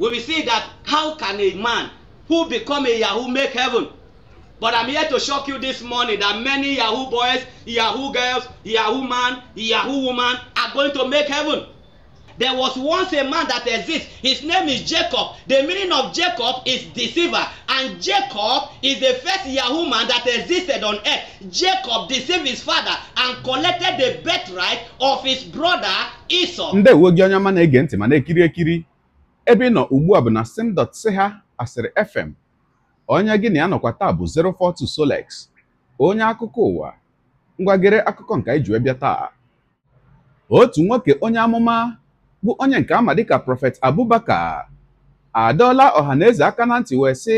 we will see that how can a man who become a yahoo make heaven but i'm here to shock you this morning that many yahoo boys yahoo girls yahoo man yahoo woman are going to make heaven there was once a man that exists his name is jacob the meaning of jacob is deceiver and jacob is the first yahoo man that existed on earth jacob deceived his father and collected the birthright of his brother esau. ndị uwe gị onye ọma na-ege ntị ma na-ekiri ekiri ebe ị nọ ugbu a bụ na ha asịrị fm onye gị na ya nọkwa taa bụ 042 Solex onye akụkọ ụwa ngwagere akụkọ nke anyị ji wee bịa taa otu nwoke onye amụma bụ onye nke ama dịka prọfet Abubakar adọọla ọha na eze aka na ntị wee sị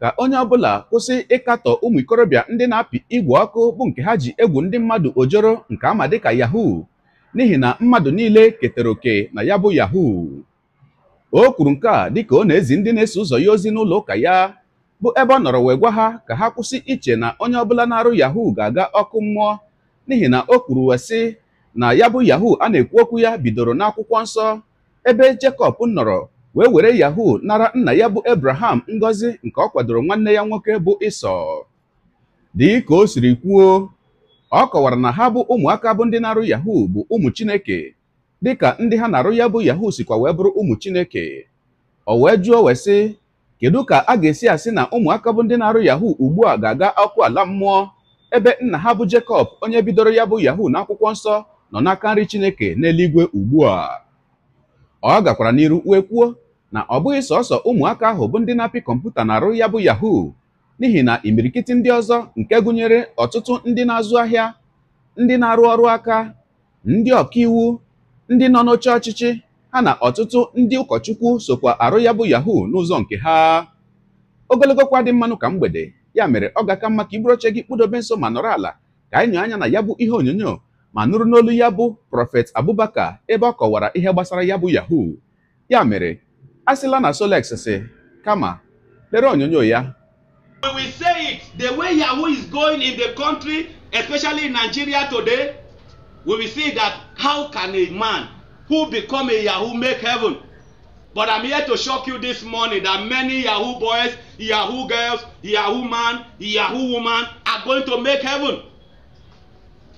ka onye ọbụla kwụsị ịkatọ ụmụ ikorobịa ndị na-apị igwe ọkụ bụ nke ha ji egwu ndị mmadụ ojoro nke ama dịka yahoo n'ihi na mmadụ niile ketara oke na ya bụ yahoo o kwuru nke a dịka ọ na-ezi ndị na-eso ụzọ ya ozi n'ụlọ ụka ya bụ ebe ọ nọrọ wee gwa ha ka ha kwụsị iche na onye ọbụla na-arụ yahoo ga-aga ọkụ mmụọ n'ihi na o kwuru wee sị na ya bụ yahoo a na-ekwu okwu ya bidoro n'akwụkwọ nsọ ebe Jekọb nọrọ wee were yahoo nara nna ya bụ ebraham Ngozi nke ọ kwadoro nwanne ya nwoke bụ Ịsọ dịka o siri kwuo ọ kọwara na ha bụ ụmụaka bụ ndị na-arụ yahoo bụ ụmụ Chineke dịka ndị ha na-arụ ya bụ yahu sikwa wee bụrụ ụmụ chineke o wee jụọ wee sị kedu ka a ga-esi asị na ụmụaka bụ ndị na-arụ yahu ugbu a ga-aga ọkụ ala mmụọ ebe nna ha bụ Jekọb onye bidoro ya bụ yahoo n'akwụkwọ nsọ nọ n'aka nri chineke n'eluigwe ugbu a ọ gakwara n'iru wee kwuo na ọ bụghị sọsọ ụmụaka ahụ bụ ndị na-apị kọmputa na-arụ ya bụ yahuu n'ihi na imirikiti ndị ọzọ nke gụnyere ọtụtụ ndị na-azụ ahịa ndị na-arụ ọrụ aka ndị ọkaiwu ndị nọ n'oche ọchịchị ha na ọtụtụ ndị ụkọchukwu sokwa arụ ya bụ yahoo n'ụzọ nke ha ogologo kwa dị mmanụ ka mgbede ya mere ọ ga-aka mma ka iburu oche gị kpụdobe nso ma nọrọ ala ka anyị anya na ya bụ ihe onyonyo ma nụrụ n'olu ya bụ prọfet abubakar ebe ọ kọwara ihe gbasara ya bụ yahoo ya mere a sịla na solex si kama lere onyonyo ya we say it the way yahoo is going in the country especially in nigeria today we will see that how can a man who become a yahoo make heaven but i'm here to shock you this morning that many yahoo boys yahoo girls yahoo man yahoo woman are going to make heaven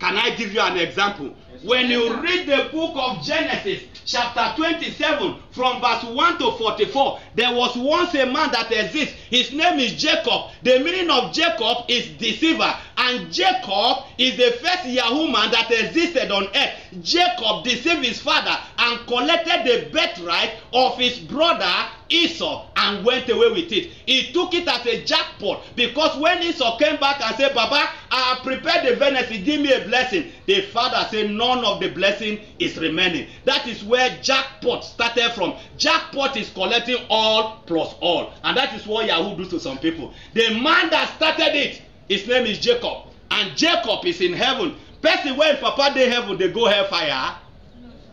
Can I give you an example? When you read the book of Genesis, chapter 27, from verse 1 to 44, there was once a man that exists. His name is Jacob. The meaning of Jacob is deceiver. And Jacob is the first Yahoo man that existed on earth. Jacob deceived his father and collected the birthright of his brother Esau and went away with it. He took it as a jackpot because when Esau came back and said, Baba, I prepared the venison, give me a blessing. The father said, None of the blessing is remaining. That is where jackpot started from. Jackpot is collecting all plus all. And that is what Yahoo do to some people. The man that started it, his name is Jacob. And Jacob is in heaven. Person when Papa dey heaven, they go hellfire.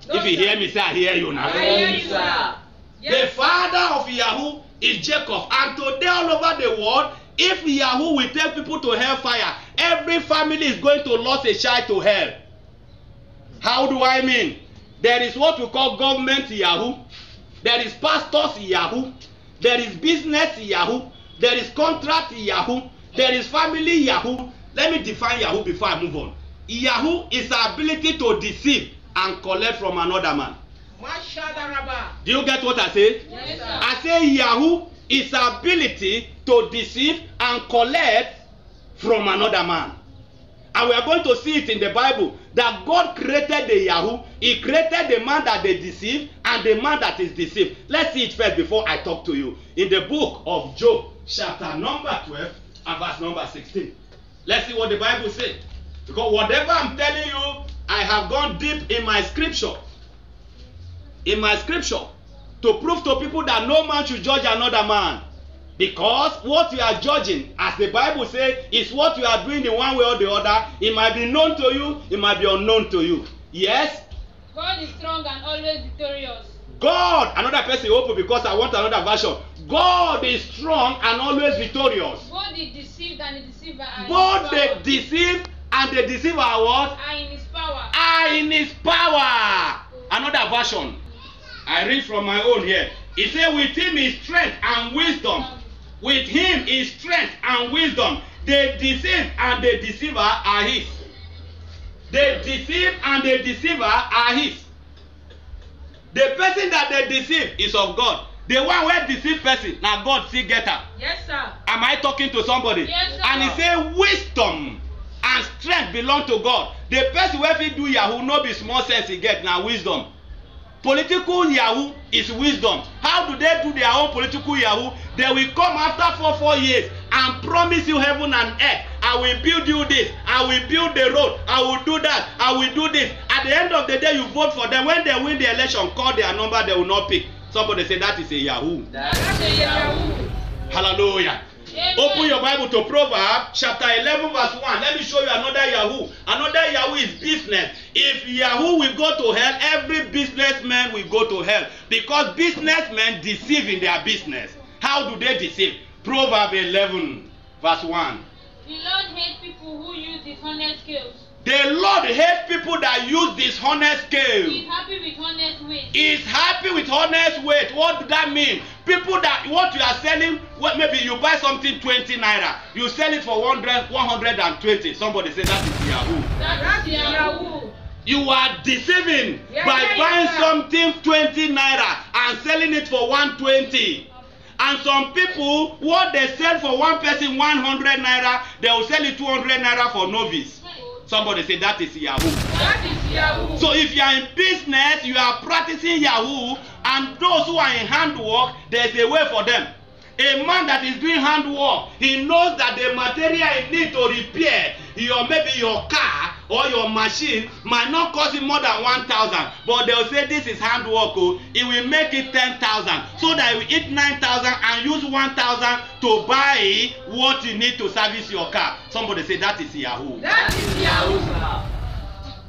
No, if you hear me, say I hear you now. I hear you, sir. The father of Yahoo is Jacob. And today, all over the world, if Yahoo will take people to hell fire, every family is going to lose a child to hell. How do I mean? There is what we call government Yahoo. There is pastors Yahoo. There is business Yahoo. There is contract Yahoo. There is family Yahoo. Let me define Yahoo before I move on. Yahoo is ability to deceive and collect from another man. Do you get what I say? Yes, I say Yahoo is ability to deceive and collect from another man. And we are going to see it in the Bible that God created the Yahoo. He created the man that they deceive and the man that is deceived. Let's see it first before I talk to you. In the book of Job, chapter number 12 and verse number 16. Let's see what the Bible says. Because whatever I'm telling you, I have gone deep in my scripture in my scripture to prove to people that no man should judge another man because what you are judging as the bible say is what you are doing in one way or the other it might be known to you it might be unknown to you yes. God is strong and always victorious. God another person open because I want another version God is strong and always victorious. Both the deceived and the deceiver are Both the deceived and the deceiver are what? Are in his power. Are in his power. Another version. I read from my own here. He said, With him is strength and wisdom. With him is strength and wisdom. The deceived and the deceiver are his. The deceived and the deceiver are his. The person that they deceive is of God. The one where deceived person now God see get am. Yes, sir. Am I talking to somebody? Yes, sir. And he say wisdom and strength belong to God. The person where he do yahoo no be small sense he get now wisdom political yahoo is wisdom how do they do their own political yahoo they will come after four four years and promise you heaven and earth i will build you this i will build the road i will do that i will do this at the end of the day you vote for them when they win the election call their number they will not pick somebody say that is a yahoo. that is a yahoo. hallelujah. Open your Bible to Proverbs chapter 11, verse 1. Let me show you another Yahoo. Another Yahoo is business. If Yahoo will go to hell, every businessman will go to hell because businessmen deceive in their business. How do they deceive? Proverbs 11, verse 1. The Lord hates people who use dishonest skills. The Lord hates people that use dishonest scale. He's happy with honest weight. He's happy with honest weight. What does that mean? People that what you are selling, well, maybe you buy something 20 naira, you sell it for 100, 120. Somebody say that is Yahoo. That is Yahoo. You are deceiving yeah, by yeah, buying yeah. something 20 naira and selling it for 120. and some people what they sell for one person 100 naira they will sell it 200 naira for novice Somebody say that is Yahoo. That is Yahoo. So if you are in business, you are practicing Yahoo, and those who are in handwork, there is a way for them. A man that is doing handwork, he knows that the material he needs to repair your maybe your car or your machine might not cost you more than one thousand but they'll say this is hand work o oh. it will make it ten thousand so that you eat nine thousand and use one thousand to buy what you need to service your car somebody say that is yahoo. that is yahoo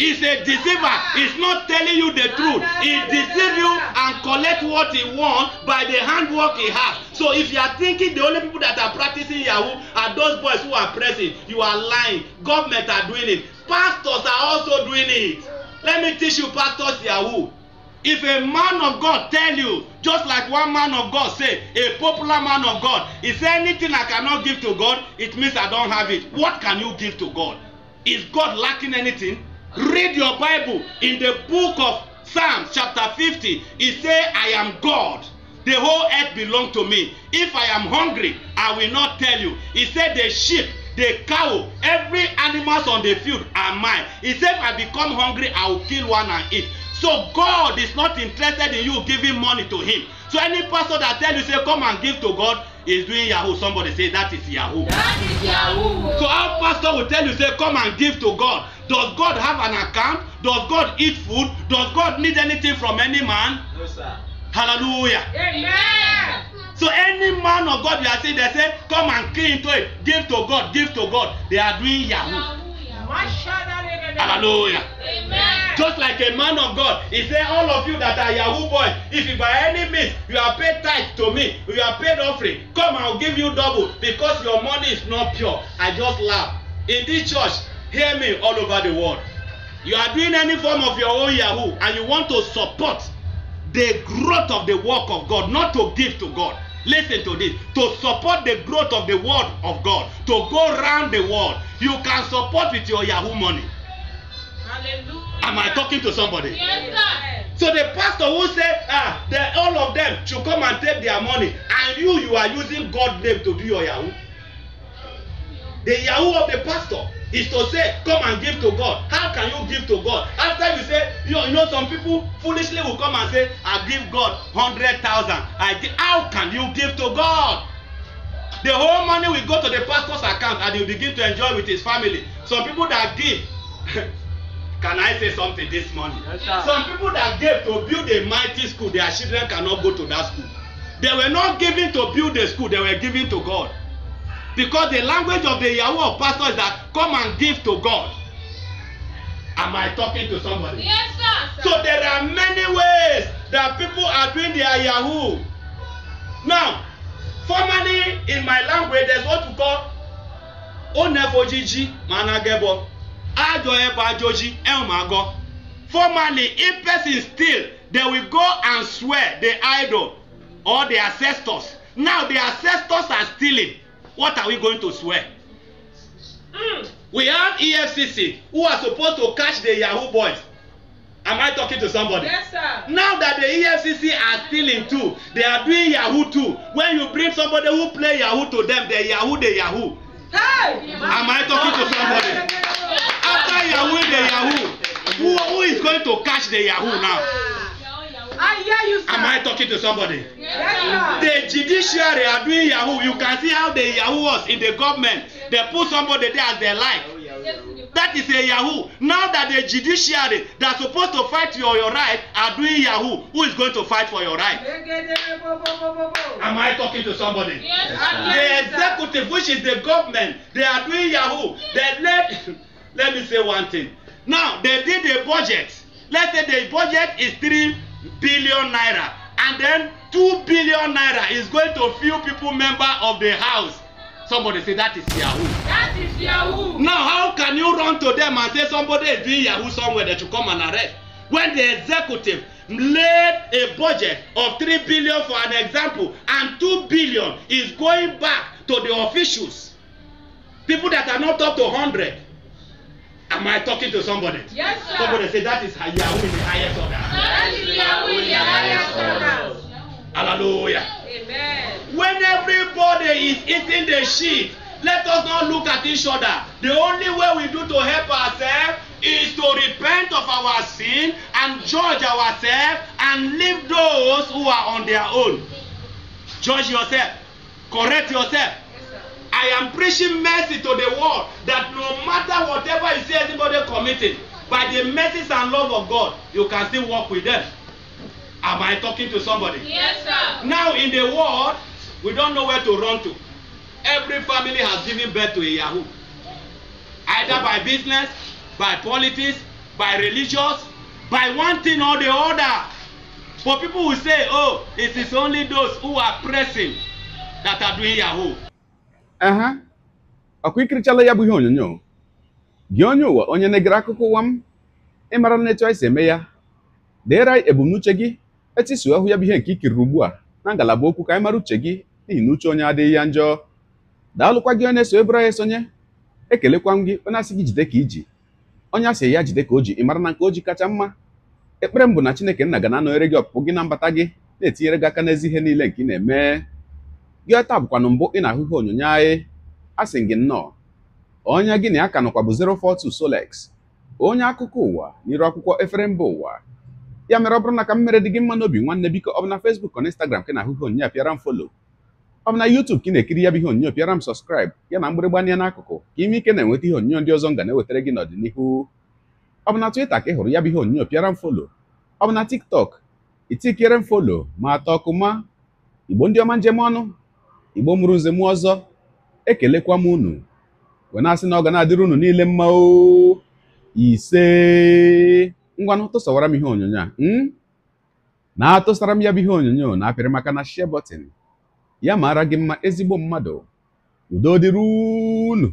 is a deceiver he's not telling you the truth he deceive you and collect what he want by the handwork he has so if you are thinking the only people that are practicing yahoo are those boys who are pressing you are lying government are doing it pastors are also doing it let me teach you pastors yahoo if a man of god tell you just like one man of god say a popular man of god if anything i cannot give to god it means i don't have it what can you give to god is god lacking anything Read your Bible in the book of Psalms, chapter fifty, He say, I am God. The whole earth belong to me. If I am hungry, I will not tell you. He said, the sheep, the cow, every animals on the field are mine. He said, if I become hungry, I will kill one and eat. So God is not interested in you giving money to him. So any pastor that tell you, say, come and give to God, is doing yahoo somebody say that is yahoo that is yahoo so our pastor will tell you say come and give to god Does God have an account? Does God eat food? Does God need anything from any man? No, sir. Hallelujah. Amen. So any man of God, you are seeing, they say, come and key into it. Give to God, give to God. They are doing Yahoo. Hallelujah. Amen. Just like a man of God, he said, All of you that are Yahoo boys, if by any means you are paid tithe to me, you are paid offering, come, I'll give you double because your money is not pure. I just laugh. In this church, Hear me all over the world. You are doing any form of your own Yahoo and you want to support the growth of the work of God, not to give to God. Listen to this. To support the growth of the word of God, to go round the world, you can support with your Yahoo money. Hallelujah. Am I talking to somebody? Yes, sir. So the pastor who said ah, that all of them should come and take their money, and you, you are using God name to do your Yahoo. The Yahoo of the pastor is to say come and give to god how can you give to god after you say you know, you know some people foolishly will come and say i give god hundred thousand i give how can you give to god the whole money will go to the pastor's account and he begin to enjoy with his family some people that give can i say something this morning yes, some people that gave to build a mighty school their children cannot go to that school they were not giving to build a school they were giving to god because the language of the yahoo of pastor is that come and give to god am i talking to somebody. yes sir. sir. so there are many ways that people are doing their yahoo now formally in my language there is what we call onefojiji managebo ajo ebo ajoji elmago formally if person steal they will go and swear the idol or the ancestors now the ancestors are stealing what are we going to swear? Mm. We have EFCC who are supposed to catch the Yahoo boys. Am I talking to somebody? Yes, sir. Now that the EFCC are stealing too, they are doing Yahoo too. When you bring somebody who play Yahoo to them, they Yahoo, they Yahoo. Hey! Am I talking to somebody? After Yahoo, they Yahoo. Who, who is going to catch the Yahoo now? you, Am I talking to somebody? Yes, the judiciary are doing Yahoo. You can see how the Yahoo was in the government. They put somebody there as they like. Oh, that is a Yahoo. Now that the judiciary that supposed to fight for your, your right are doing Yahoo, who is going to fight for your right? Am I talking to somebody? Yes, the executive, which is the government, they are doing Yahoo. They let, let me say one thing. Now, they did a budget. Let's say the budget is three billion naira and then two billion naira is going to few people member of the house somebody say that is yahoo. that is yahoo. now how can you run to them and say somebody is doing yahoo somewhere they should come and arrest when the executive laid a budget of three billion for an example and two billion is going back to the officials people that are not up to hundred Am I talking to somebody? Yes, sir. Somebody say that is Yahweh the highest order. That is Yahweh the highest order. Hallelujah. Amen. When everybody is eating the shit, let us not look at each other. The only way we do to help ourselves is to repent of our sin and judge ourselves and leave those who are on their own. Judge yourself. Correct yourself. I am preaching mercy to the world that no matter whatever you see anybody committing, by the mercies and love of God, you can still walk with them. Am I talking to somebody? Yes, sir. Now in the world, we don't know where to run to. Every family has given birth to a Yahoo. Either by business, by politics, by religious, by one thing or the other. For people who say, oh, it is only those who are pressing that are doing Yahoo. aha ọkwa ikirichala ya bụ ihe onyonyo gị onye ụwa onye na-egere akụkọ ụwa m ịmara na etu anyị si eme ya deere ebumnuche gị etisuo hụ ya bụ ihe nke ikiriri ugbu a na ngalaba okwu ka anyị mara uche gị n'ihi na uche onye adịghị ya njọ daalụkwa gị onye na-eso ebere anyị esonye ekelekwa m gị onye asị gị jide ka iji onye asị ya jide ka o ji ịmara na nke o ji kacha mma ekpere m bụ na Chineke nna ga na-anọnyere gị ọpụpụ gị na mbata gị na-etinyere gị aka n'ezi ihe niile nke ị na-eme gị ọta bụkwanụ mbụ ị na-ahụhụ onyonyo anyị a sị gị nnọọ onye gị na ya ka nọkwa bụ 042 Solex onye akụkọ ụwa n'iru akwụkwọ efere mba ụwa ya mere ọ bụrụ na ka mmere dị gị mma n'obi nwanne biko ọ bụ na Facebook na Instagram ka na-ahụhụ onyonyo pịara m folo ọ bụ na ka ị na-ekiri ya bụ ihe onyonyo pịara m sọskraib ya na mgbịrịgba ya n'akụkụ ka ime ike na-enweta ihe onyonyo ndị ọzọ m ga na-ewetara gị n'ọdịnihu ọ bụ ka ị hụrụ ya bụ ihe onyonyo pịara m folo ọ TikTok itikere m folo ma atọ ọkụ ma igbo ndị ọma njem ọnụ igbo mụrụ nze m ọzọ ekelekwa m unu wee na-asị na ọ ga na-adịrị unu niile mma o ise ngwanụ tụsawara m ihe onyonyo a na-atụsara m ya bụ ihe onyonyo na-apịrị maka na share ya maara gị mma ezigbo mmadụ udo dịrị unu